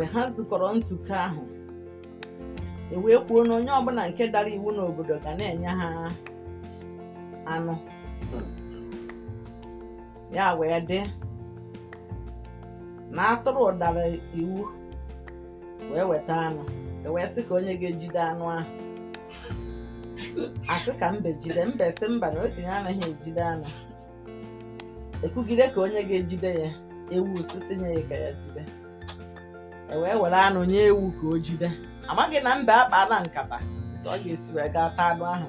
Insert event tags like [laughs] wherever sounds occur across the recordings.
mgbe ha zukọrọ nzukọ ahụ e wee kwuo na onye ọbụla nke dara iwu n'obodo ga na-enye ha anụ ya wee dị na atụrụ ụdara iwu wee weta anụ e wee sị ka onye ga-ejide anụ ahụ asị ka mbe jide mbe sị mba na okenye anaghị ejide anụ ekwugide ka onye ga-ejide ya ewu sisi nye ya ka ya jide E wee were anụ nye ewu ka o jide amaghị na mbe akpa na nkata ọ ga-esi wee gaa taa anụ ahụ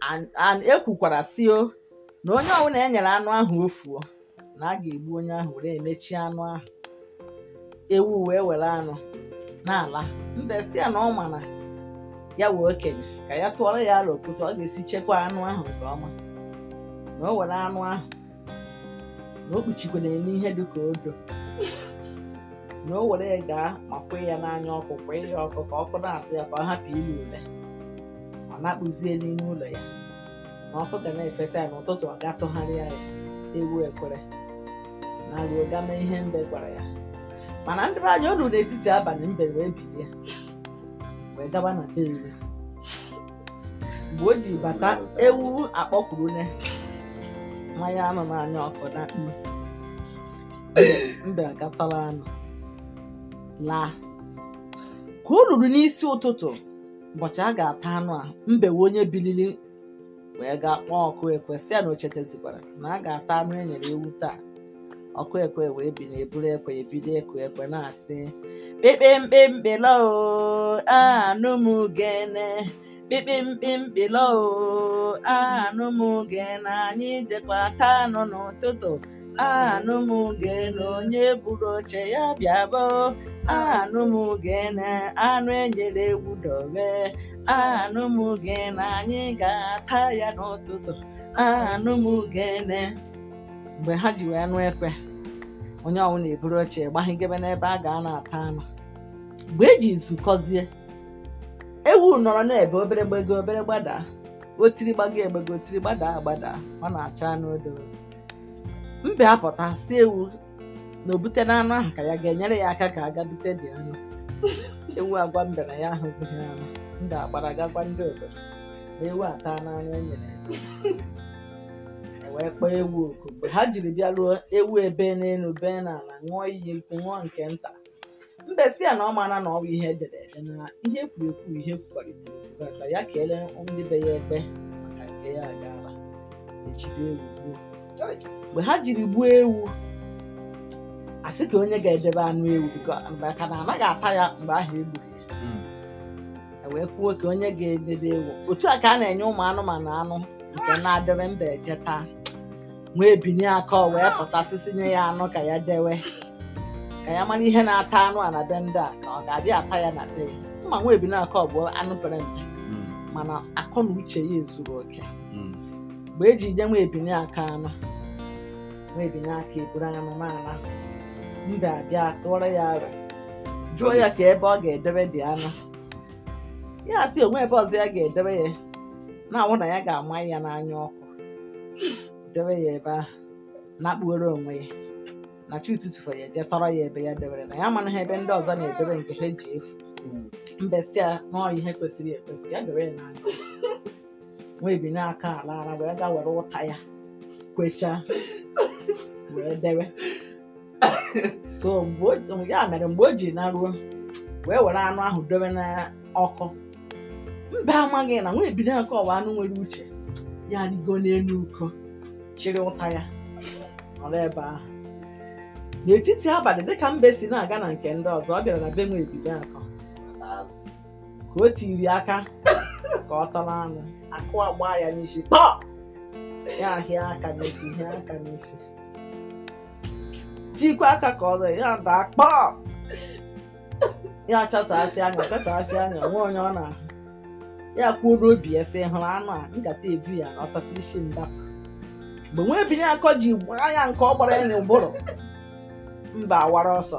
naanị ya ekwukwara sio na onye ọbụla e nyere anụ ahụ ofuo na a ga-egbu onye ahụ were emechi anụ ahụ ewu wee were anụ n'ala mbe si ya na ọ ma na ya wee okenye ka ya tụọrọ ya ala okwute ọ ga-esi chekwa anụ ahụ nke ọma na o were anụ ahụ na o kpuchikwere n'ihe dịka odo na o were gaa ma kwee ya n'anya ọkụ kwa ya ọkụ ka ọkụ na-atụ ya ka ọ hapụ ile ule ọ na-akpụzie n'ime ụlọ ya na ọkụ ga na-efesa ya n'ụtụtụ ọ ga-atụgharịa ya ewu ekwere na ruo ga ihe mbe gwara ya mana ndị be anya olu n'etiti abalị mbe wee bilie wee gaba na be iwu mgbe o ji bata ewu akpọkwuru ne mmanya anụ n'anya ọkụ na mbe agatọla anụ laa ka o ruru n'isi ụtụtụ ụbọchị a ga-ata anụ a mbewe onye bilili wee gaa kpọọ ọkụ ekwe si ya na o na a ga-ata anụ e nyere ewu taa ọkụ ekwe wee bi na eburu ekwe ebido ekwe ekwe na-asị kpekpe mkpe mkpelo anụ m gene kpekpe mkpe mkpelo anụ m gene anyị dịkwa taa anụ n'ụtụtụ anụ m gene onye buru oche ya bịa boo! anụ m gene anụ enyere egwu dobe anụ m gene anyị ga-ata ya n'ụtụtụ anụ m gene mgbe ha ji wee nụ ekwe onye ọnwụ na-eburu oche gbahigebe n'ebe a ga na-ata anụ mgbe eji nzukọzie ewu nọrọ na-ebe obere gbego obere gbadaa otiri gbago egbego otiri gbadaa agbada ọ na-acha anụ mbe apụta si ewu na obute na anụ ahụ ka ya ga-enyere ya aka ka aga dị anụ [laughs] ewu agwa mbe na ya ahụzighị anụ ndị agbara gagwa ndị obodo ma ewu ata n'anụ e nyere e wee kpọọ ewu oku mgbe ha jiri bịa ruo ewu ebe n'elu bee n'ala ṅụọ iyi nkwụ ṅụọ nke nta mbe si ya na ọ mana na ọwa ihe edere ede na ihe kwuru ekwu ihe kwukọrịtara ekwukọrịta ya kelee ndị be ya ekpe maka nke ya agaala ejide ewu gbuo mgbe ha jiri gbuo ewu asị ka onye ga-edebe anụ ewu ka na anaghị ata ya mgbe ahụ egburu e wee kwuo ka onye ga-edebe ewu otu a ka a na-enye ụmụ anụmanụ anụ nke na-adịrị mba eje taa nwee binye aka wee pụtasịsị nye ya anụ ka ya dewe ka ya mara ihe na-ata anụ a na be ndị a ka ọ ga-abịa ata ya na be ya mma nwebinaka ọ bụ anụ pere mpe hmm. mana akọ na uche ya ezuru oke hmm. mgbe e ji nye nwa ebinye aka anọ nwa ebinye aka eburu anụmanụ mbe abịa tụọrọ ya ara jụọ ya ka ebe ọ ga-edebe dị anụ ya sị onwe ebe ọzọ ya ga-edebe ya na-awụ na ya ga-ama ya n'anya ọkụ debe ya ebe ahụ na-akpughere onwe ya na chi ụtụtụ ya jee tọrọ ya ebe ya debere na ya mana ha ebe ndị ọzọ na-edebe nke ha ji efu mbesịa n'ọhịa ihe kwesịrị ekwesị ya debe ya n'anya Nwa bi n'aka ala ara wee gaa were ụta ya kwechaa wee dewe so ya mere mgbe o ji naruo wee were anụ ahụ dowe na ọkụ mba amaghị na nwa ebido nke ọwa anụ nwere uche ya rigo n'elu uko chịrị ụta ya ọrụ ebe ahụ n'etiti abalị dịka mbe si na-aga na nke ndị ọzọ ọ bịara na be nwa ebido ka o tiri aka ka ọ tara anụ akụ agba ya n'isi pọ ya ahịa aka n'isi hịa aka n'isi tikwa aka ka ọ ya daa kpọọ ya chasasị anya chasasị anya nwee onye ọ na-ahụ ya kwuo n'obi ya sị hụrụ anụ a nkata ebu ya na ọsakwa isi ndapụ mgbe nwa ebinye akọ ji gbaa ya nke ọ gbara ya n'ụbụrụ mba awara ọsọ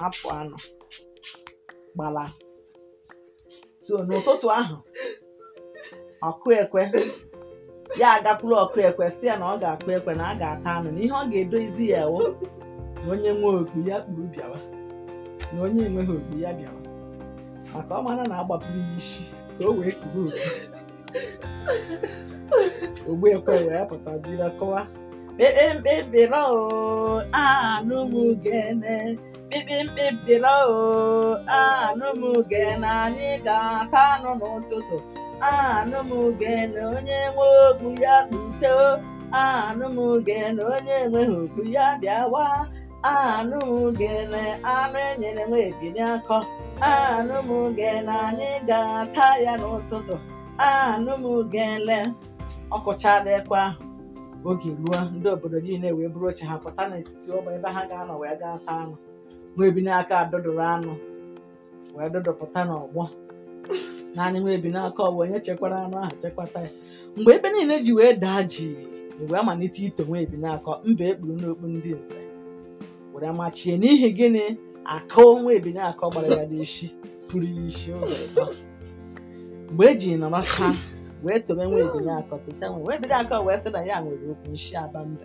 hapụ anụ gbala so n'ụtụtụ ahụ ọkụ ekwe ya agakwuru ọkụ ekwe si ya na ọ ga-akụ ekwe na a ga-ata anụ na ihe ọ ga-edozi ya ewu na onye nwe okpu ya kpuru bịawa na onye enweghị okpu ya bịawa maka ọ mara na agbapụrụ ya isi ka o wee kpuru okpu ogbu ekwe wee pụta jiri kọwa e, e, e, oh, anụ m gene mkpikpi mpilo anụ m uge na anyị ga-ata anụ n'ụtụtụ anụ m na onye nwe okpu ya kpute anụ m na onye enweghị okpu ya bịawa anụ m uge na anụ enyere nwe ebili akọ anụ m na anyị ga-ata ya n'ụtụtụ anụ m uge le oge ruo ndị obodo niile wee bụrụ oche ha pụta n'etiti ụmụ ebe ha ga-anọ wee gaa taa anụ nwa ebi n'aka adụdụrụ anụ wee dụdụpụta n'ọgbọ naanị nwa ebi n'aka ọgbọ onye chekwara anụ ahụ chekwata ya mgbe ebe niile ji wee daa ji wee malite ito nwa ebi n'aka mba ekpuru n'okpu ndị nze were machie n'ihi gịnị akụ nwa ebi n'aka gbara ya n'isi pụrụ ya isi ụzọ mgbe eji nọrọta wee tobe nwa ebi n'aka tocha nwa ebi n'aka wee sị na ya nwere okwu nshi aba mbe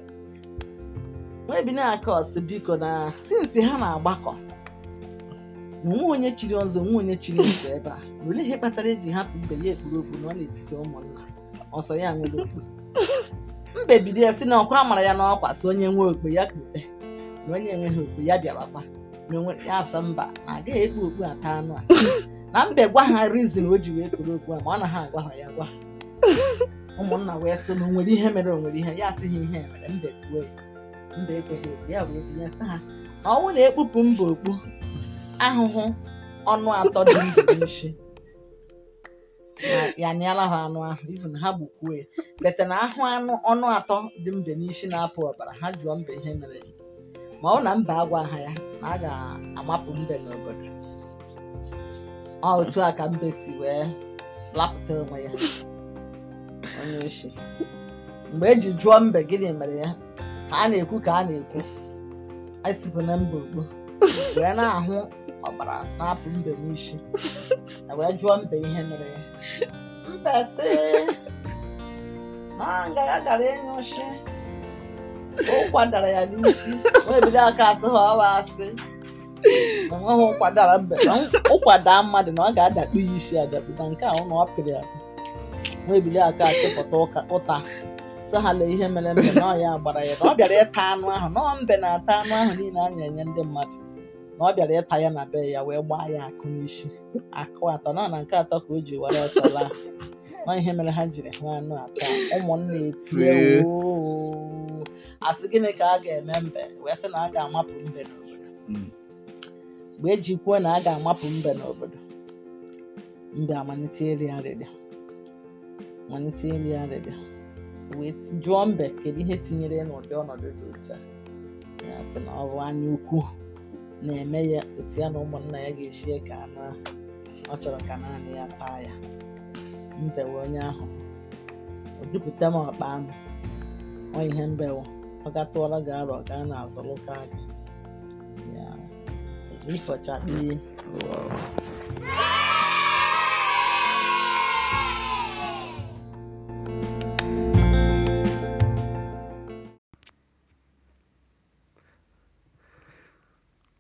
webinakos biko na sinsi ha na-agbakọ na onwe onye chiri ọzọ nwa onye chiri ọzọ ebe a na ihe kpatara eji hapụ mbe ya ekpuru okpu na-etiti ụmụnna ọsọ ya nwere okpu mbe bido ya si na ọkwa mara ya n'ọkwa si onye nwe okpu ya kpute na onye enweghị okpu ya bịarakwa na ya asa mba na agaghị ekpu okpu ata anụ a na mbe gwa ha rizin o ji wee kpuru okpu a ma ọ na ha agwa ha ya gwa ụmụnna wee sị na onwere ihe mere onwere ihe ya asịghị ihe mere mbe kwuo mba ekweghị ekwe ya bụ ebinyesa ha ọnwụ na ekpupu mba okpu ahụhụ ọnụ atọ dị ndụ nshi ya nịala ha anụ ahụ na ha gbukwuo ya bete na ahụ anụ ọnụ atọ dị mbe n'isi na-apụ ọbara ha jụọ mbe ihe mere ma ọ na mba agwa ha ya na a ga-amapụ mbe n'obodo ọ otu a ka mbe si wee lapụta onwe ya onye oshi mgbe eji jụọ mbe gịnị mere ya a na-ekwu ka a na-ekwu anyị sipụ na mba okpo wee na-ahụ ọbara na-apụ mbe n'isi e wee jụọ mbe ihe mere ya sị na ngaga gara ịnyụshi ụkwa dara ya n'isi wee bido aka asị ha ọwa asị enweghị ụkwadara mbe na ụkwada mmadụ na ọ ga-adakpu ya isi adakpu na nke ahụ na ọ pịrị ya wee bido aka achịpụta ụta sahala ihe mere mbe na ọya gbara ya na ọ bịara ịta anụ ahụ na mbe na-ata anụ ahụ niile anya enye ndị mmadụ na ọ bịara ịta ya na be ya wee gbaa ya akụ n'isi akụ atọ na na nke atọ ka o ji were ọtọ laa na ihe mere ha jiri ha anụ atọ ụmụnne etie asị gịnị ka a ga-eme mbe wee sị na a ga-amapụ mbe n'obodo mgbe mm. eji kwuo na a ga-amapụ mbe n'obodo mbe amalite iri arịrịa malite iri arịrịa wee jụọ mbe kedu ihe tinyere n'ụdị ọnọdụ dị otu a ya si na ọ bụ anya ukwu na-eme ya otu ya na ụmụnna ya ga-esi ka na ọ chọrọ ka naanị ya taa ya mbewe onye ahụ o dupụta m ọkpa anụ ọ ihe mbewe ọ gatụọla gị arọ gaa n'azụlụka gị ya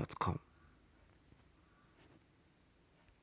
Podcast.com.